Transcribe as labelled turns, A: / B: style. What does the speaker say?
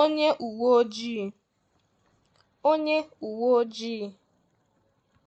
A: onye uwe ojii.